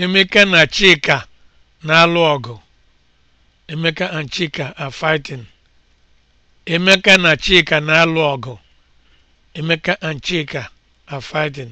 Emeka na Chika na-alụ ọgụ. Emeka and Chika are fighting. na Chika na-alụ ọgụ. Emeka and Chika are fighting.